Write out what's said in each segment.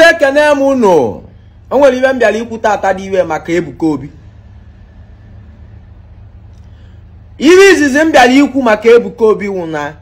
eze ekene m unu o nwere ibe m bịara ikwu tata dị iwe maka Ebuka Obi Iri izizi m bịara ikwu maka Ebuka Obi wụ na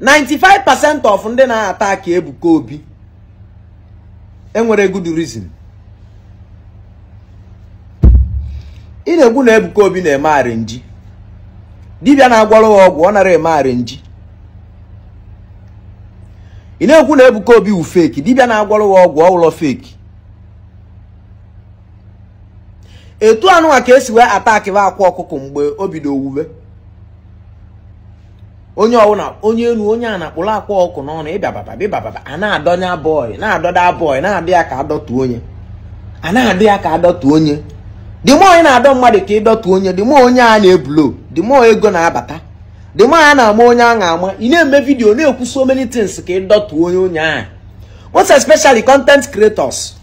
95% of ndị na-ata aka Ebuka Obi enwere good reason ị na egwu na Ebuka Obi na-eme arinji dibịa na-agwọrọ ya ọgwụ ọ nara eme arinji ị na-ekwu na Ebuka Obi wu feki dibịa na-agwọrọ ya ọgwụ ọwụlọ feki etu anụnwa ka esi wee atakiba akwa ọkụkọ mgbe o bido owuwe onye ọwụna onye elu onye a na-akpụrụ akwa ọkụ n'ọnụ ịbababa bịbababa a na-adọnya bọị na-adọda bọị na-adị ya ka adọtu onye a na-adị ya ka adọtu onye mụ onye na-adọ mmadụ ka ịdọtu onye dị mụ onye a na-ebulo dịmọ ego na-abata the man na-ama onye a na-ama ị na-eme vidiyo na-ekwu so many things ka ị onye onye ahụ most especially content creators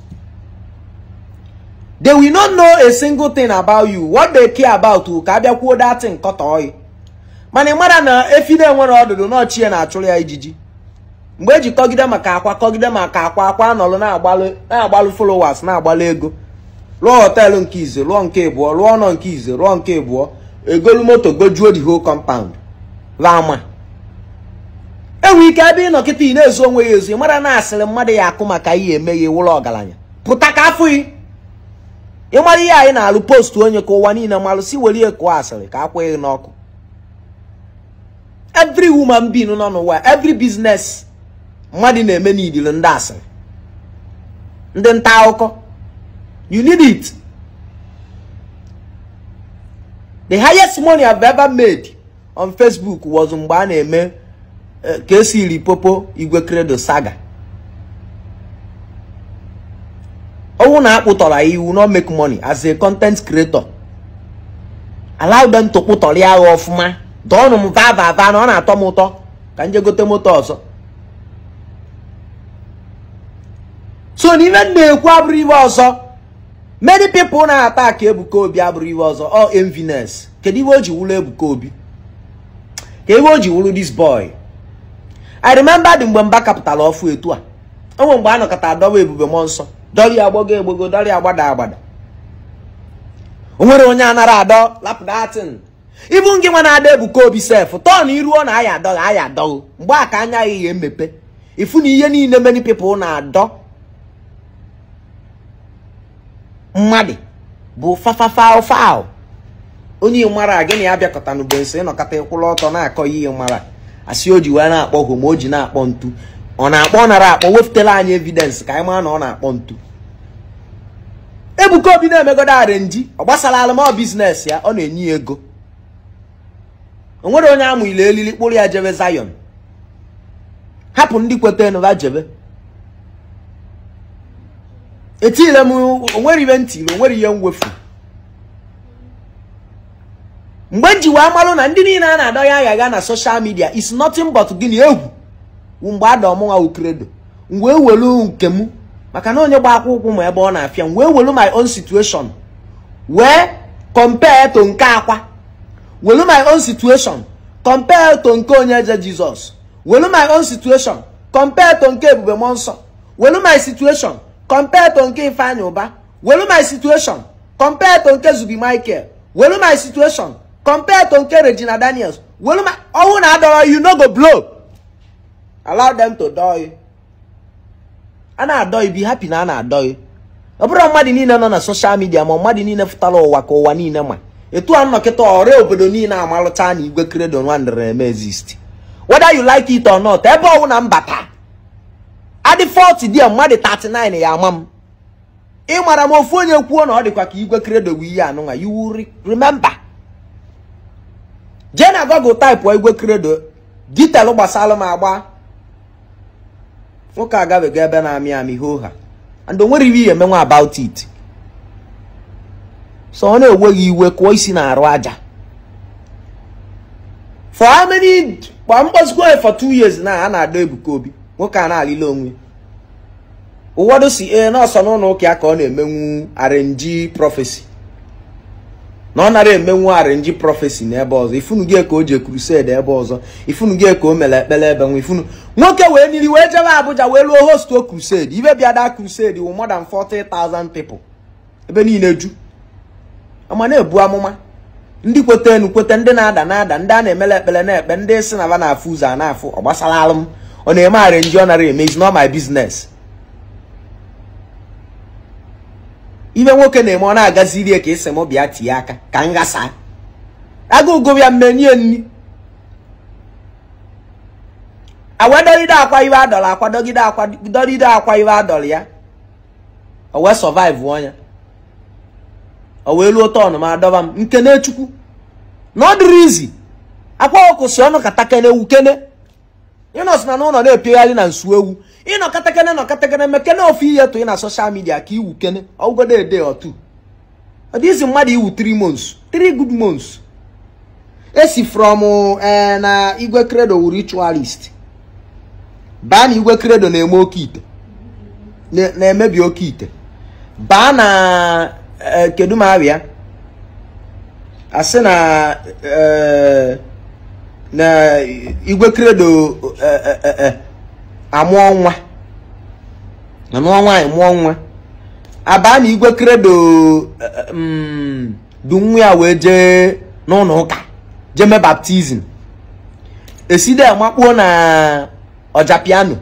they will not know a single thing about you what they care about you ka abịakwuo nkọta kọtọi mana ị mara na efi na-enwere ọdụdụ na ya na-achụrụ ya ijiji mgbe eji kọgide maka akwa kọgide maka akwa akwa anọlụ na-agbalụ followers na-agbalụ ego lụọ họteelụ nke ize lụọ nke ịbụọ lụọ ọnọ nke ize lụọ nke ịbụọ egolu moto gojuo the whole compound rama enwe ike ebe ị nọkịta ị na-ezu onwe ya ezu ị mara na asịrị mmadụ ya akụ maka ihe eme ya ewụrụ ọgaranya pụta ka afụ ị ịmara ihe anyị na-alụ postu onye ka ụwa niile malụsi were ya asịrị ka akwụghị n'ọkụ evri woman being nọ n'ụwa evri business mmadụ na-eme n'idiri ndị asịrị ndị nta akụkọ you it the highest money I've ever made on Facebook wọzụ mgbe a na-eme eh, ka esi esiri popo igwe credo saga owu na akpụtọrọ iwu no make money as a content creator allow them to kpụtọrọ ya agha ọfụma dọọnụ m vavava na ọ na-atọ m ụtọ ka m gote moto ọzọ so n'ime ife m na-ekwu abụrụ iwe ọzọ many people na-ata ka Ebuka Obi abụrụ iwe ọzọ ọ enviness kedu iwe o ji wụlọ Ebuka Obi ka o ji wụrụ dis boy i remember dị mgbe mba kapụtara ọfụ etu a onwe mgbe a nọkọta ebube mmụọ nsọ dọrị agbogo egbogo dọrị agbada agbada o nwere onye anara adọ lapụdatin ibu ngị nwa na-ada ebuka obi sef tọn iruo na aya adọghị aya adọghị mgbe a ka anya ihe mmepe ifu na ihe niile many people na-adọ mmadụ bụ fafafafal onye mara gị gịnị ya bịakọta n'ugbo nso ịnọkọta ịkwụla ọtọ na-akọ ihe mara asị o ji wee na-akpọ hụ ma o ji na-akpọ ntu ọ na-akpọ nara akpọ wefutela anyị evidensị ka anyị mara na ọ na-akpọ ntu Ebuka Obi na-emegodo arenji ọ gbasara alụmọ biznes ya ọ na-enye ego o nwere onye amụ ile elili kpụrụ ya jebe zayon hapụ ndị kweta nụba jebe etile m onwere ihe ntiri onwere ihe mwefu mgbe njiwa amalụ na ndị niile a na-adọ ya aghaga na soshal midia is nothing but gịnị egwu mgbe ada ọmụnwa ukredo wee ewelu nke m maka na onye gba akwa ụkwụ ma ebe ọ na-afịa m wee ewelu my own situation wee compare to nke akwa welu my own situation compare to nke onye je jizọs welu my own situation compare to nke ebube mmụọ nsọ welu my situation compare to nke ifeanyị ụba welu my situation compare to nke zubi michael welu my situation compared to nke Regina Daniels weluma ọnwụ na adọrọ you no go blow allow them to dọọ a na-adọghị ibi happy na a na ọ bụrụ mmadụ niile nọ na soshal midia ma mmadụ niile fụtara ụwa ka ụwa niile ma etu a nnọkịta ọrịa obodo niile amalụta na igwe kredo nwandịrị eme exist whether you like it or not ebe ọwụ na mbata adị 40 dia mmadụ 39 ya ama m ịmara m ofu onye kwuo na ọ dịkwa ka igwe kredo bụ ihe anụnwa you will remember Google taịpụ igwe kredo detail gbasara m agba nwoke agabego ebe na-amị amị hoo ha and onwere iwe ihe emenwe about it so ọ na-enweghị iwe kụọ isi na-arụ aja for how many kwa mkpọzikwa for two years na a na-adọ Ebuka Obi nwoke a na-alịla onwe ụwọdụ si ee nọọsọ n'ụlọ ụka ya ka ọ na-emenwu arenji prọfesi na ọ nara emenwu arinji prọfesi n'ebe ọzọ ifunu gị ka o ji krused ebe ọzọ ifunu gị ka o mere ekpere ebe nwa ifunu nwoke wee niri wee jebe Abuja wee luo hostuo krused ibe bịada krused wụ more than 40,000 ebe niile ju ama na-ebu amụma ndị kweta enu kweta ndị na-ada na-ada ndị a na emere ekpere na-ekpe ndị si na ba na-afụ ụzọ a na-afụ ọ gbasara alụm ọ na-eme arinji ọ nara emezi not my biznes ime nwoke na-eme ọ na-agaziri ka esi bịa tie aka ka m ghasa agụgo ya mmenie nri awadogide akwa iwe adọrọ akwadogide akwadogide akwa iwe adọrọ ya o wee survive ọnya o wee luo tọn ma adọba m nke na echukwu na ọ dịrị izi akwa ọkụ si ọnụ katakene wukene i na n'ụlọ na-epegharị na nsu ewu ịnọ katakene nọ katakene mekene ofu ihe tụ ị na soshal midia ka iwukene ọgwụgodo ede otu mmadụ iwu 3 months 3 good months esi from e, na igwe credo wụ ritualist baa na igwe credo na emebi oke ite baa na e, kedu ma asị na e, na igwe kredo eh, eh, eh, amụọ nwa na mụọ nwaanyị abaa na igwe kredo mm, du nwa ya wee jee n'ụlọ ụka jee baptizim eside makpuo na ọjapiano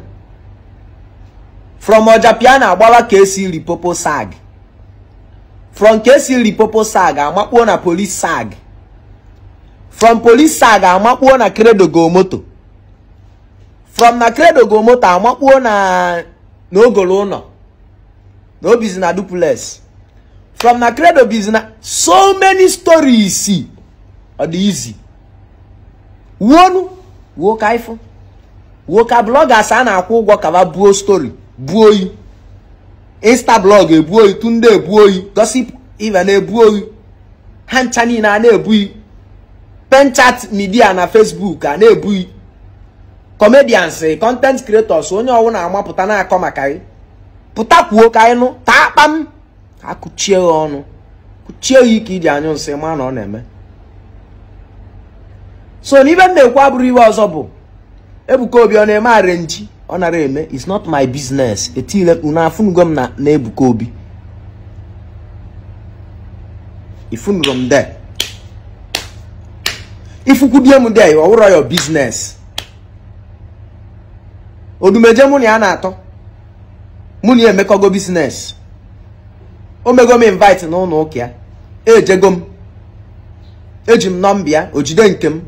from ọjapiano agbawa ka esi ripopo sag from ka esi ripopo sag amakpuo na polis sag from police side amakpuo na credo go moto from na credo go moto amakpuo na n'ogolo ụlọ na obizi na duplex from na credo bizi na so many stories ọ dị izi wuonu wuo ka ifo ka bloggers a na-akwụ ụgwọ kaba buo story buo oyi insta blog ebuo oyi tunde ebuo oyi gossip even ebuo oyi ha ncha niile na na-ebu oyi penchat midia na facebook a na-ebughị comedians content creators onye na amapụta na-akọ maka gị pụta kwuo ka anyị nụ taa akpa ka kụchie ya ọnụ kụchie ya ike iji anyụ nsị ma na ọ na-eme so n'ibe m na-ekwu abụrụ iwe ọzọ bụ Ebuka Obi ọ na-eme arenji ọ nara eme it's not my business etile unu afụnugo m na Ebuka Obi ifunugo m de ifukwudie m dị ọ wụrụ ya biznes odumeje mụ na ya na-atọ mụ na ya emekọgo business o mego m invite n'ụlọ ụka ya ejego m eji m nọmba o ojide nke m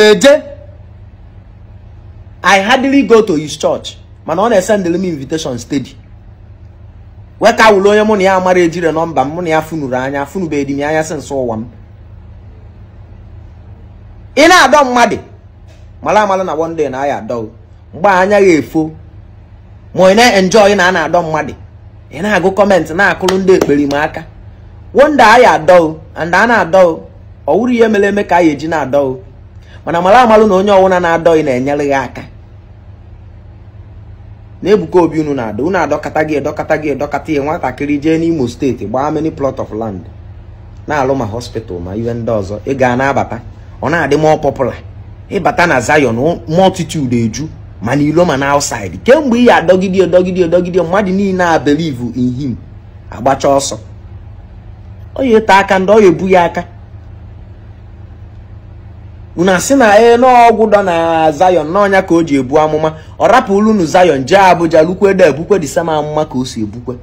eje i hardly go to his church mana ọ na-esendịrị m invitation steady weka ka onye mụ na ya mara ejire nọmba mụ na ya funuru anya funubeghị m anya si nso ụwa m ị na-adọ mmadụ mara amala na one na aya adọ mgbe anya ya efo ma ị na-enjoy na a na-adọ mmadụ ị na-agụ kọmentị na-akụrụ ndị ekperima aka wonde aya adọ anda a na-adọ ọ wụrụ ihe mere eme ka a ya eji na-adọ mana mara amalụ na onye ọwụna na-adọghị na-enyere ya aka na Ebuka Obi unu na ada unu adọkata gị edọkata gị edọkata ya nwatakịrị jee n'Imo steeti gbaa many plot of land na-alụ ma hospital ma ihe ndị ọzọ ị ga na-abata ọ na-adị mọ pọpụla ịbata na Zion mọltitude eju mana ilo ma na outside kemgbe ị ya adọgide edọgide edọgide mmadụ niile a believe in him agbacha ọsọ onye ete aka ndị ọ ya ebu ya aka unu si na e n'ọgwụ dọ na Zion n'ọnya ka o ji ebu amụma ọ rapụrụ unu Zion jee Abuja lukwede ebukwe dị sama amụma ka o si ebukwe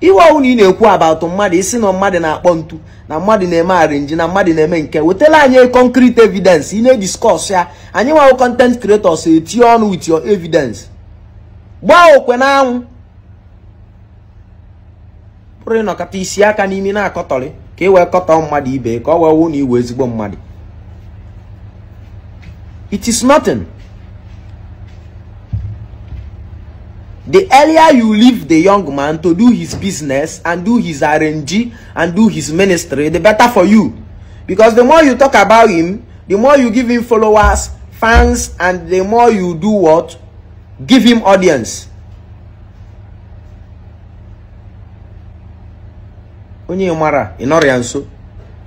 iwe ọwụna ị na-ekwu atụ mmadụ isi na mmadụ na-akpọ ntu na mmadụ na-eme arinji na mmadụ na-eme nke wetala anyị concrete evidence ị na-ediskọs ya anyị nwawo content creators eti ọnụ with your evidence gbaa okwe n'anwụ pụrụ ịnọkọta isi aka n'imi na-akọtọrị ka ị e wee kọtọ mmadụ ibe ka ọ wee wụ na iwe ezigbo mmadụ It is nothing. The earlier you leave the young man to do his business and do his RNG and do his ministry, the better for you. Because the more you talk about him, the more you give him followers, fans, and the more you do what? Give him audience. Onye mara, ịnọrọ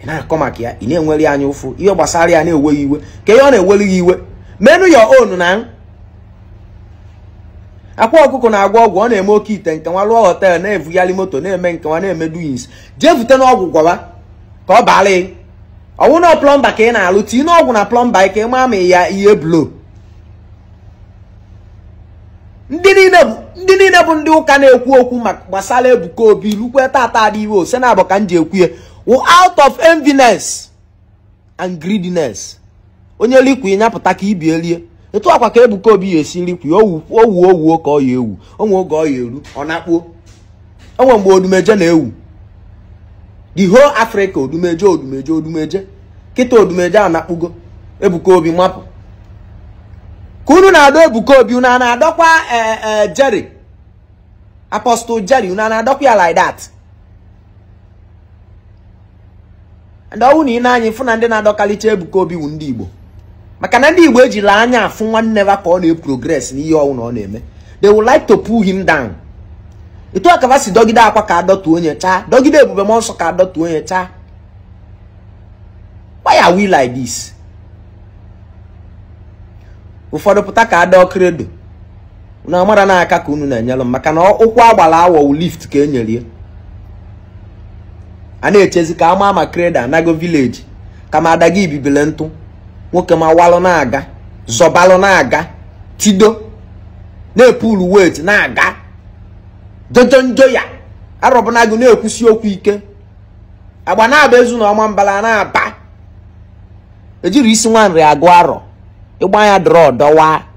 ị na-akọ maka ya ị na anya ụfụ ihe gbasara ya na-eweghị iwe ka ihe ọ na-ewere iwe menu your own na akwa ọkụkọ na-agwa ọgwụ ọ na-eme oke ite nke nwa lụọ họtel na-evugharị moto na-eme nke nwa na-eme duins jee vute n'ọgwụ gwawa ka ọ baara ị ọnwụ na plọmba ka ị na-alụ tii n'ọgwụ na plọmba ka ị maa ma ya ihe blo ndị niile bụ ndị ụka na-ekwu okwu maka gbasara Ebuka Obi rukwe tata adịghị iwe ose na abụ ka m ji ekwu ya out of enviness and greediness onye likwi nyapụta ka ibi elie etu akwa ka Ebuka Obi ya esi likwi owu owu ka ọ ya ewu onwe oge ọ ya eru ọ na-akpuo onwe mgbe odumeje na-ewu the whole Africa odumeje odumeje odumeje kịta odumeje a na-akpụgo Ebuka Obi mapụ ka unu na-adọ Ebuka Obi unu na-adọkwa eh, eh, Jerry Apostle Jerry unu na-adọkwa ya like that ndị ọnwụ na ị na-anya ịfụ na ndị na-adọkalite Ebuka Obi wu ndị Igbo maka na ndị Igbo ejila anya afụ nwanne ha ka ọ na-eprogress ihe ọnwụ na ọ na-eme they would like to pull him down etu akaba si dọgide akwa ka adọtuo onye chaa dọgide ebube m ọsọ ka adọtuo onye cha why are we like this ụfọdụ pụta ka adọ kredo na amara na aka ka unu na-enyelụ maka na ụkwụ agbara awọ lift ka e nyerie a na-echezi ka ama ama kreda anago vileji kama adaga ibibile ntụ nwoke ma walụ na-aga zọbalụ na-aga tido na-epulu wet na-aga njo ya arọbụnagụ na-ekwusi okwu ike agba na-aba ezu na ọma mbala na-aba ejiri isi nwa nri agụ arọ ịgba ya dọrọ dọwaa